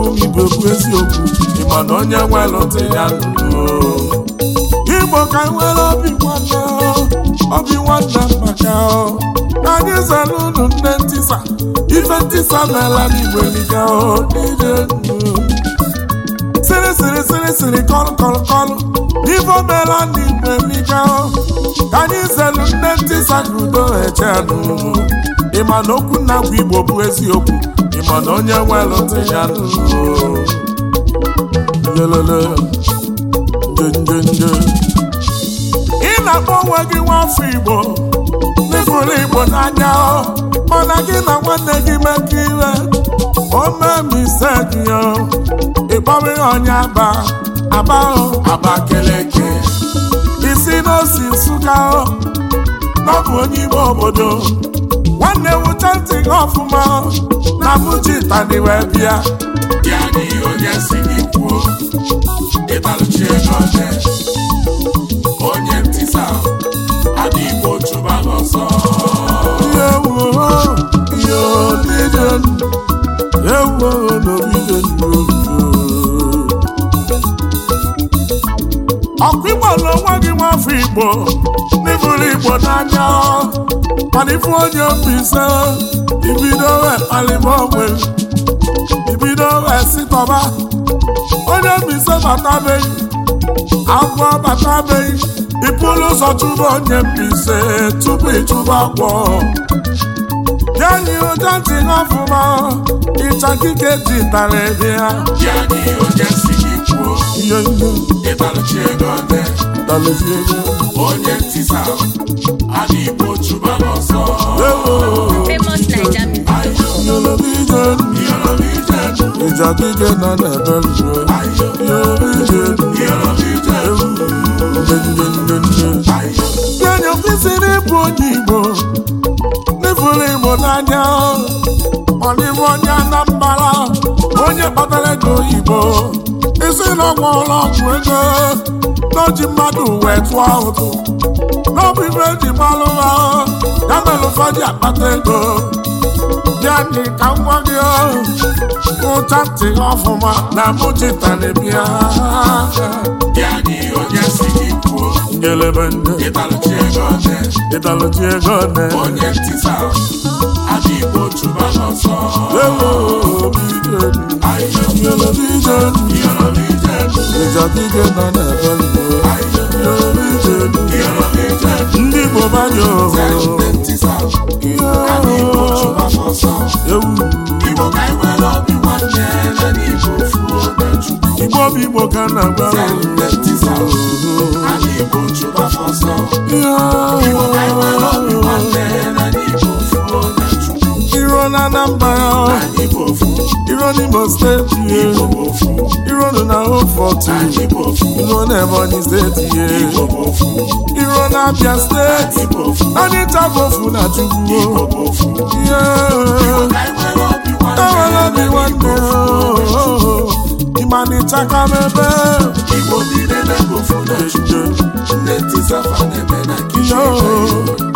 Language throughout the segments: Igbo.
ọmụ m igbo bụ eziokwu ịma na onye nwe nwelụta ya igbo ka nwere obi nwanne obi nwanne maka anyị zara unu nne ntisa ife ntisa meela n'igbo eliga niile sịrị sịrị sịrị sịrị kọlụ kọlụ kọlụ n'ife omeela n'igbo eliga ka anyị zelu nne ntisa ka udo eche n'ụlọ ịma na okwu nna bụ igbo bụ eziokwu ịma na onye nwe ntị ya ị na-akpọ onwe gị nwafọ igbo n'ịfụrụ igbo n'anya mana gị na nwanne gị mekọ ire o mee misteki ya ịkpọrọ ihe onye aba aba abakeleke isi n'osi nsụka ọ bụ onye ime obodo nwanne m ntị ọfụma na abụji tani wee bịa ya na ihe onye si gị kwuo ego onye ntịsa adị igbo chụba ọsọ elu ọkụ igbo n'onwe gị afọ igbo n'ịbụrụ igbo n'anya mana ifu onye obi ise ibido wee onwe ibido wee sitọba onye obi ise batabeghị agwọ batabeghị ịpụrụ ụzọ chụba onye mbi ise tupu ịchụba agwọ Yanyi oje ti ná fúnmọ́, ìtàn kíkẹ́ ti tàlẹ̀ bí i. Yanyi oje sì ní kú o, ìbálòjì ẹ̀dọ́ ọ̀tẹ̀. pụtalezie onye ntisa adị igbo chụba n'ọsọ ịjadije na na-eberue yanya kwesịrị ịbụ onye igbo n'ifuru igbo n'anya onye anambara onye kpatara ego oyibo isi ụlọ ọgwụ ego n'oji mmadụ wee tụọ ụtụ n'ọbụ ibe eji gbalụ ha ya mere ụfọdụ akpata ego bịa dị ka nwa gị ụcha ntị ọfụma na mụchitanebia kelebe ndị ịtalụchi ego ọdị ndị bụ banye ooo igbo ka na agba na Anambra Iro n'Imo steeti ye Iro nọ na Ofortu Iro n'Ebonyi steeti ye Iro n'Abia steeti Anyị tabofu na Chukwu Ewere obi nwanne Imani chaka mebe Igbo niile na na Chukwu Nne Tisafa na-eme na Kishore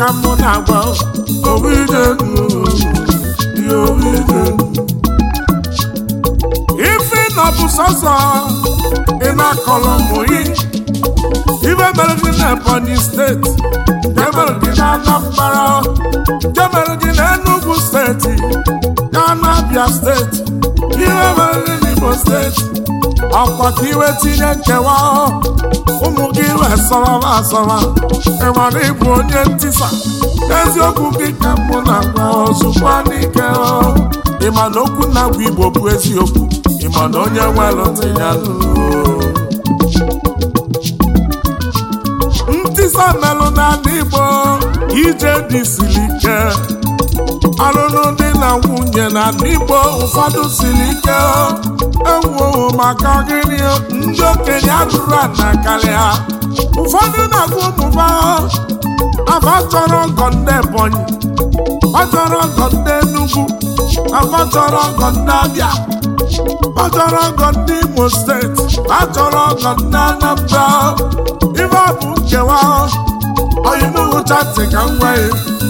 ka mụ na-agwa ife na ọ bụ sọsọ ị na-akọrọ mụyi ibe mere gị na Ebonyi steeti jemere gị na Anambra jemere gị na Enugwu steeti na Abia steeti ihe mere gị na Imo steeti ọkwa ka iwe tinye nkewa ụmụ gị wesọrọ asọrọ ịmara ịbụ onye ntisa eziokwu gị ka mụ na-agwa ozugbo n'ike ịma na okwu na-agwa igbo bụ eziokwu ịma na onye nwere ntị ya ntisa melụ na igbo ije dị siri ike ọlụlụ dị na nwunye na n'igbo ụfọdụ siri ike ewuo maka gịnị ndị okenye atụrụ ana karịa ụfọdụ na-agụ ụmụba afa chọrọ ọgọ ndị ebonyi ọchọrọ ọgọ ndị enugwu achọrọ ọgọ ndị abịa achọrọ ọgọ ndị imo steeti achọrọ ọgọ ndị anambra ife ọ bụ nkewa ọyịmụhụchatị ka m nwee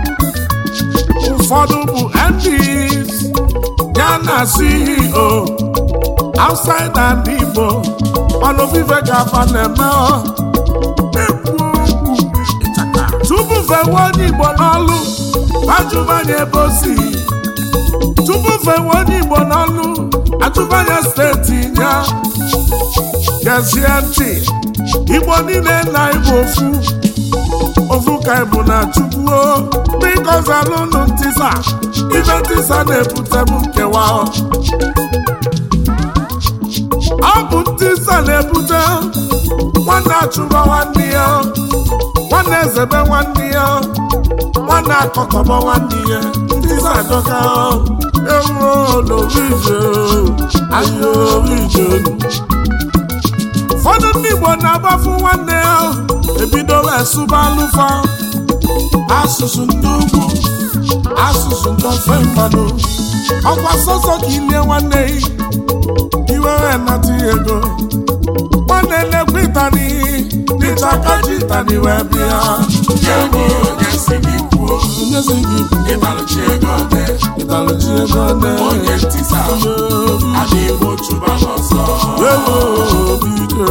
ụfọdụ bụ MPs ya na CEO outside and Igbo ọnụvive ga-afa na-eme tupu fewe onye Igbo n'ọlụ ajụbanye ebe o si tupu fewe onye Igbo n'ọlụ ajụbanye steeti ya gezie ntị Igbo niile na Igbo ofu ofuka bụ na chukwuo biko zalụnụ ntisa ibe ntisa na ebute bụ nkewa ọ bụ ntisa na-ebute nwanne achụba nwanne ya nwanne ezebe nwanne ya nwanne akọkọba nwanne ya ntisa adọka ewuo ije, ahịa ije. ụfọdụ ndị Igbo na-agbafu nwanne ya ebido wee sụba alụfa asụsụ ndị ugwu asụsụ ndị ofe mmanụ ọkwa sọsọ ka ilie nwanne gị iwe wee nata ego nwanne lekwa ịtani n'ịtakaji ịtani wee bịa nyezi gị ịtalụchi ego ọdị ịtalụchi ego ọdị onye ntịsa adịghị otu ba n'ọsọ ewo obi ike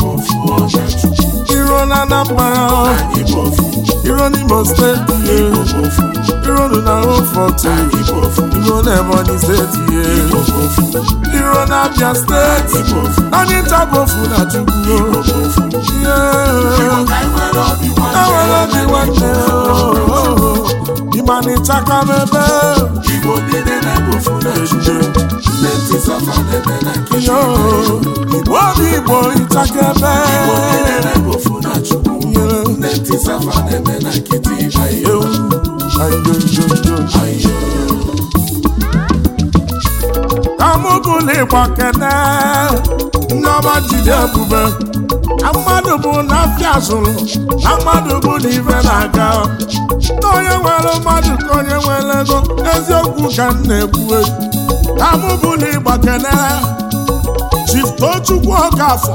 na Anambra iro n'Imo steeti iro na Oforto iro na Ebonyi steeti iro na Abia steeti anyị ntabofu na Chukwu enwere obi nwanne ịmanịchaka n'ebe Igbo obi Igbo ịchaka ebe na chukwu ndị tisafa na na ayo ayo mmadụ bụ na afịa zụrụ na mmadụ bụ na ibe na-aga nwere mmadụ ka onye nwere ego eziokwu ka m na-ekwue amụbụlịgba kene Chief Tochukwu Okafọ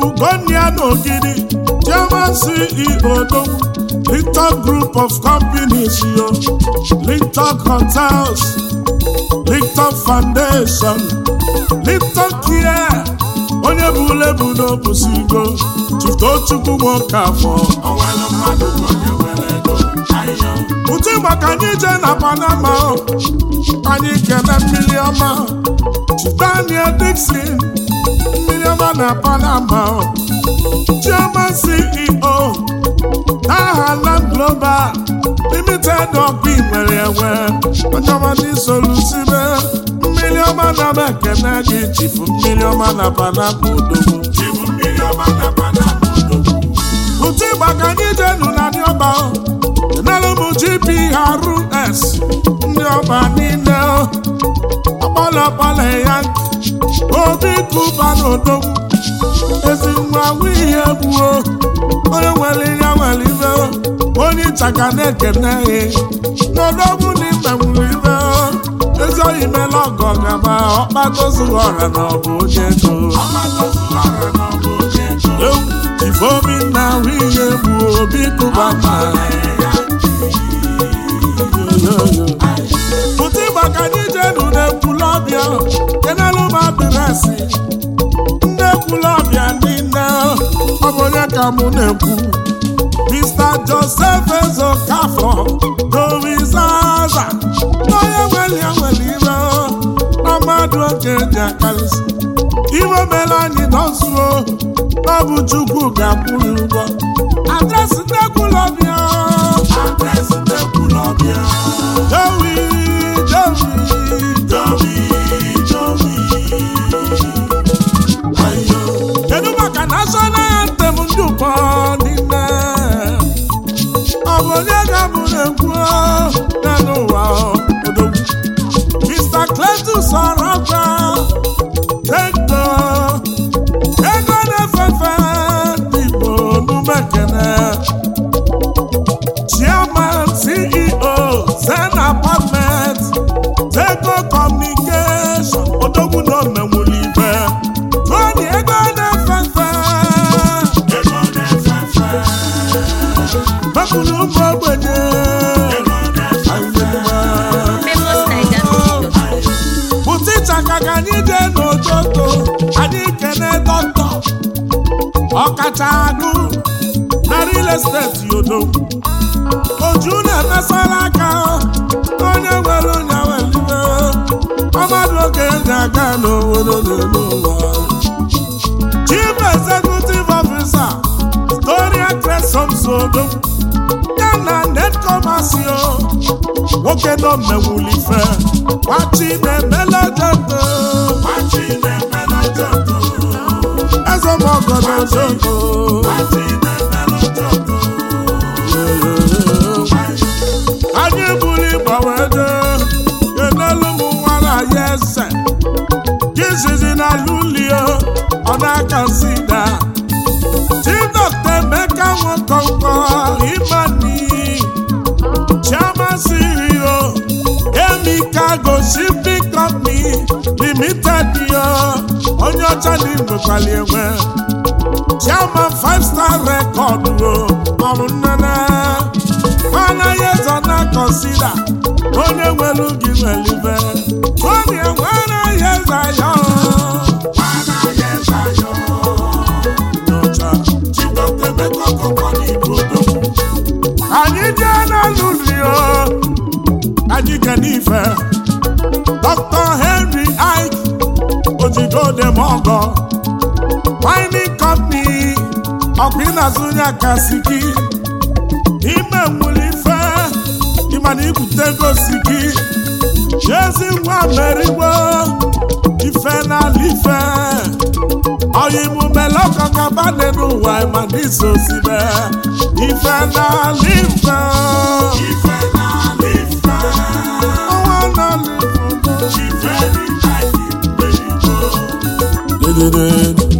Ugonia Nogidi, German CEO Dong, Linton Group of Companies, yo. Linton Hotels, Linton Foundation, Linton Care, onye bụ lebu e n'obusigo Chiftochukwu nwoke afọ ụtụ maka anyị jee na Panama anyị kene mmiri ọma Daniel Dixon Chioma na Panama Chioma CEO aha Land Global Limited ọkụ nwere enwe ọchọmadị solusibe mmiri ọma na mekene gị chifu mmiri ọma na Panama odogwu ụtụ ịgba ka anyị jenu na ndị ọba enelu m GPRS ndị ọba niile ọkpọlọkpọlọ ya nke obi kụba n'odogwu ezi nwa ihe gbuo onye nwere ya nwere ibe onye chaka na-ekene ya n'odogwu na ibe nwere ibe ezi oyi mere ọgọ gaba ọkpatozuru ọra na ọbụ onye ego ifeobi na ahụ ihe gbuo obi kụba ma asị nne ekwula ọbịa niile ọ bụ mụ na-ekwu Mr. Joseph Ezokafọ dorizaza onye nwere nwere ire na oge ji akarịsị iwe mere anyị nọzuo ọ bụ Chukwu ga-akwụrụ ụgwọ adresị nne ọbịa adresị ọkacha agụ na real estate yodo oju na-emesara aka onye nwere onye welibe ọmadụ oge ndị aga n'obodo n'elu ụwa chief executive officer Gloria Tresom Sodo ya na netkomasio nwoke nọ mmewulife gbachi na-emela jọdo eze anyị na lulio ọ na-akasida ti emeka ego shipping company limited yo onye ọcha na igwekwali enwe chairman five star record o ọrụ nnene ọ naghị ezo na na-azụ onye akasi gị ime nwere ife ịma na ibute gosi gị chezi nwa merigbo ife n'ala ife oyibumelekọkabadị n'ụwa ịma na iso osibe ife n'ala ife ọnwa n'ala ife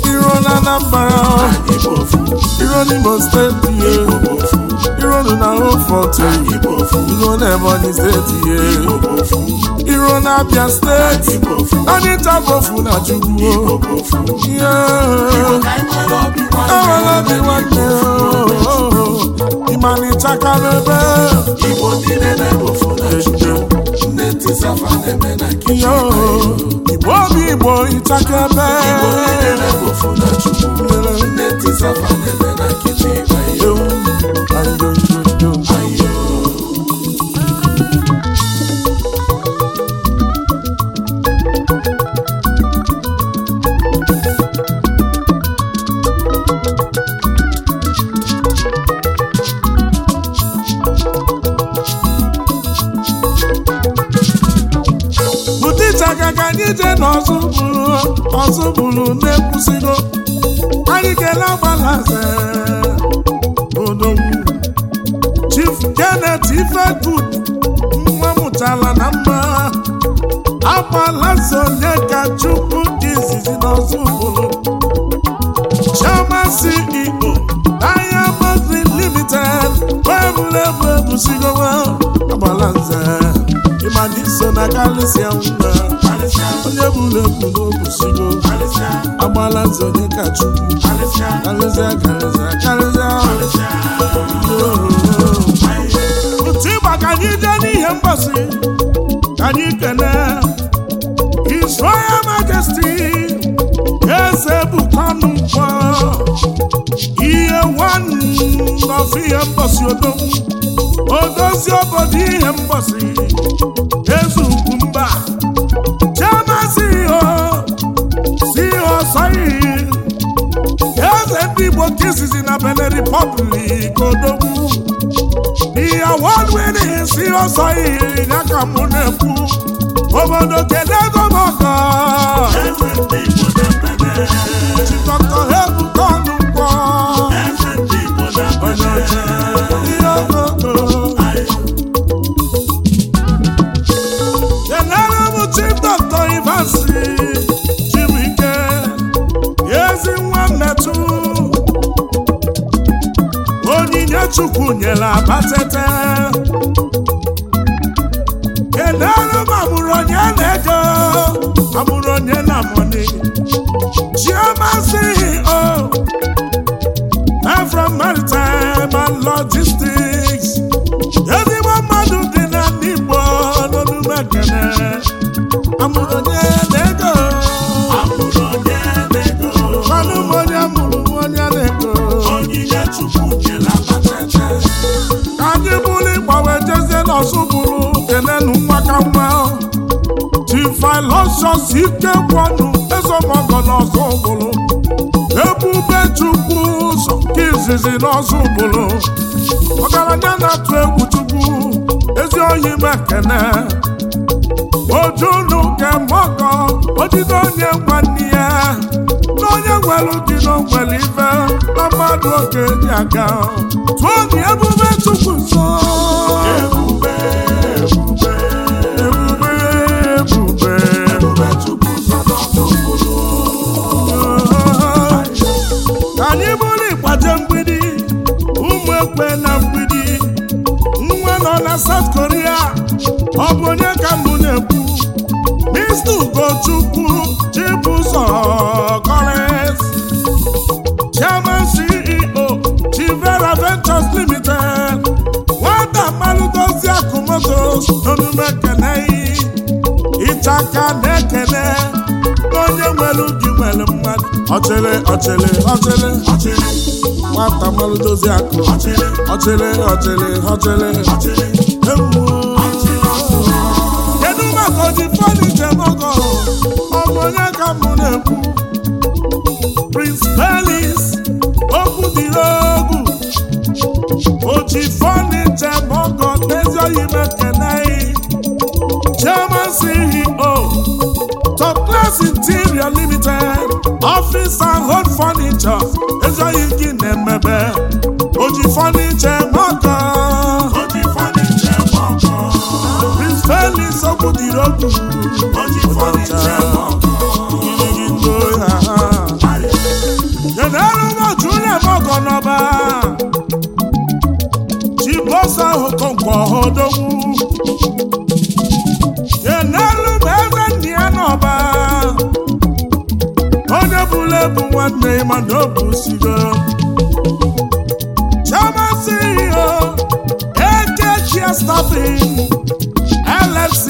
iro na Anambra iro n'Imo steeti ye iro na Hofort iro na Ebonyi steeti ye iro na Abia steeti anyị tabofu na Chukwu ewela obi nwanne na n'ebe igbo obi igbo ịchakebe ije na ọzọ bụrụ ọzọ bụrụ na-ekwusigo anyị kele agbalaze odogwu Chief Janet Ifegood nwa mụtara na mma agbalaze onye ka Chukwu dị izizi n'ọzọ bụrụ Chioma CEO Diamond Limited wee bụrụ ebu ebusigo agbalaze mana so na karịsịa mma onye bụrụ ebu n'obusigo agbala nze onye ka chukwu karịsịa karịsịa karịsịa otu ịgba ka anyị jee n'ihe mgbasi ka anyị kene His Royal Majesty eze bụkwanụ mkpọ ihe nwanne ọfụ ihe mgbasi odogwu si obodo ihe mgbasi eze ukwu mba si ho si ọsọihi eze ndị igbo kisizi na Benin Republic odogwu ihe awọdwere si ọsọihi ya ka mụ na-ekwu obodo kedu ego na Jizọs bụrụ kenenu nwa ka mma Tifilosios ike kwọnụ ezemọgọnọzọ bụrụ ebube Chukwu ụzọ ka izizi n'ọzọ bụrụ ọgaranya na-atụ egwu Chukwu ezi oyi mekene ojunu kemọgọ ojide onye gwanne ya onye nwere dị n'ogwere ibe na mmadụ oge dị aga tụọ na ebube chukwu nso ebube ebube ebube ebube ka anyị bụrụ ịgbaje mgbidi ụmụ ekwe na mgbidi nwa nọ na South Korea ọ bụ onye ka mbụ na-ekwu Mr. Ugochukwu olume ekene ịta aka na-ekene onye nwere ubi nwere mmadụ ọchịrị ọchịrị ọchịrị ọchịrị nwata mmalụ dozie akụ ọchịrị ọchịrị ọchịrị ọchịrị ọchịrị kedu maka oji fọdụ njem ọgọ ọbụ ka mụ na-ekwu Prince Pelis okwu dị egwu oji fọdụ njem ọgọ n'ezi oyi mekene CEO, Top Class Interior Limited, Office and Home Furniture, Ezoyi gị emebe Oji Furniture Mọkọ. Oji Furniture Mọkọ. Prince Felix Okwudirogwu. Oji Furniture Mọkọ. Gịnị gị ha ha. nwanne ị ma na ọ bụ sigo chamasị ihe ekechia stafin LFC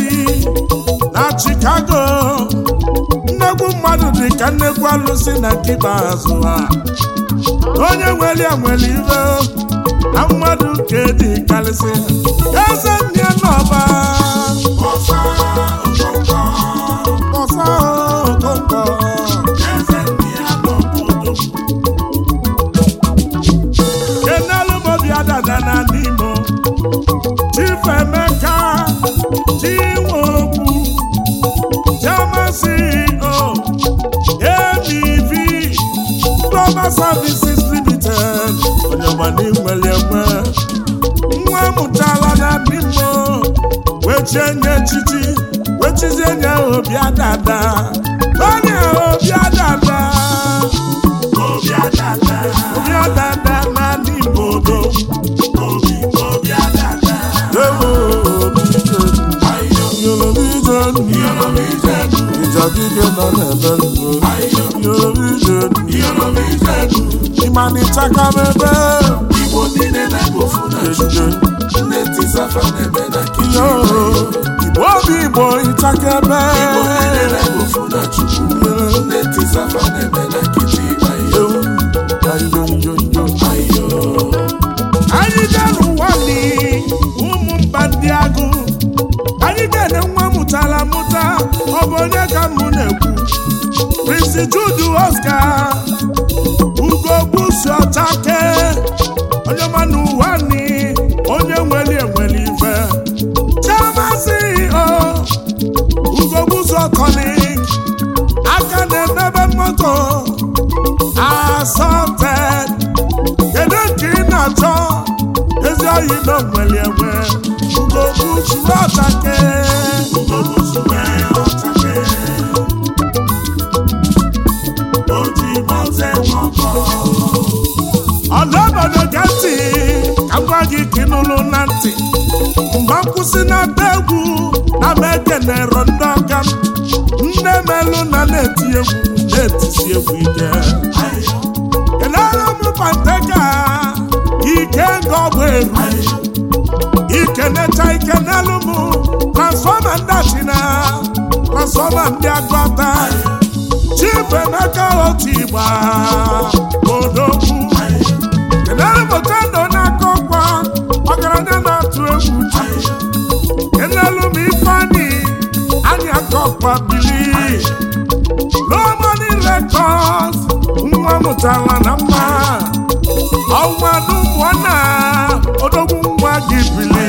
na Chicago nnegwu mmadụ dị ka nnegwu alụsị na nkịta azụ ha onye nwere ya nwere na mmadụ ka dị karịsị eze nne n'ọba ọsa Services Limited onye gbana nwere enwe nwa amụtala na bimo wechie nye echichi wechizie nye obi adada onye obi adada obi na Yoruba ije Yoruba mana ịchakara ebe Igbo niile na-ebe ofu na njuju nne tisafa na-ebe na kichin Igbo bụ Igbo ibo ebe Igbo niile na-ebe ofu na chukwu nne safa na-ebe na kichin ayo ayo njo njo ayo anyị dara ụwa ni ụmụ mba ndị agụ anyị ga-ene nwa mụtara mụta ọ bụ onye ka mụ na-ekwu Prince Jude gị ka ịnụrụ na ntị mgbe nkwụsị na-ata egwu na na ekenero ndị ọka m nne melụ na na-eti egwu na-etisi egwu ike elere m pateka ike nga ọ bụ eru ikenecha ike n'elu m transfọma ndị achina transfọma ndị agụata chibuemeka otu igba odogwu elere m na ọkwa bili n'ọmọdụ rekọd nwa mụtara na mma ọnwadụ mụọ na odogwu nwa gị bili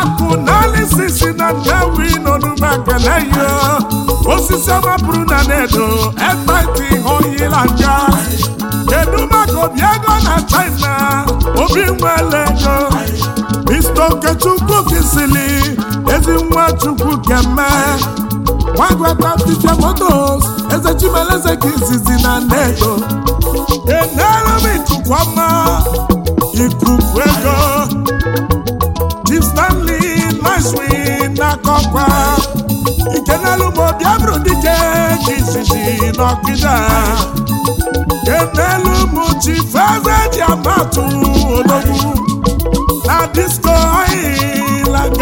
akụ naanị sisi na ndewi n'ọdụmaka na osisi ọma na na-edo hụyila nja kedu maka obi ego na china obi nwere ego okechukwu kisili Nwachukwu keme gwagwata motos eze Chimeleze ka izizi na nnedo enelumitukwama ikuku ego Chief Stanley Nicewin n'akọkwa ikenelugbo bịabụrụ dike ka izizi n'ọkịda kenelum Chief Eze Diamatu ologwu na dis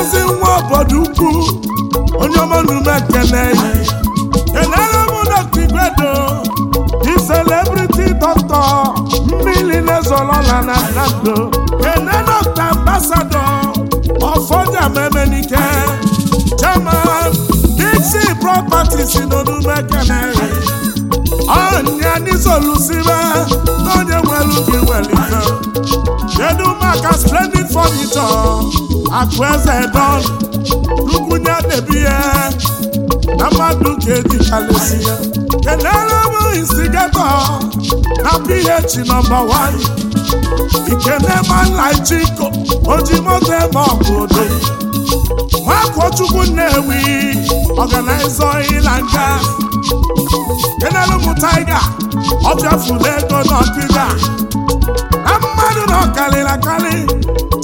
ezi nwa obodo ukwu onye ọma na ekele enere m dọkta igwedo di celebrity doctor mmiri na-ezolola na nando ene dọkta ambasado ọfọjamaemenike chairman dixi properties n'onumekele ọnya n'izolusibe n'onye nwere ubi welite kedu maka splendid furniture akụ eze don lukwunye na-ebi ya na mmadụ ka edikalesi ya kenere bụ instigato na ph nọmba 1 ikenemalaichiko ojimoto ebe ọbụdo nwakochukwu nnewi ọganaiza ịla nga kenere mụ taiga ọbịafụla ego n'ọdịda na mmadụ na ọkarịrị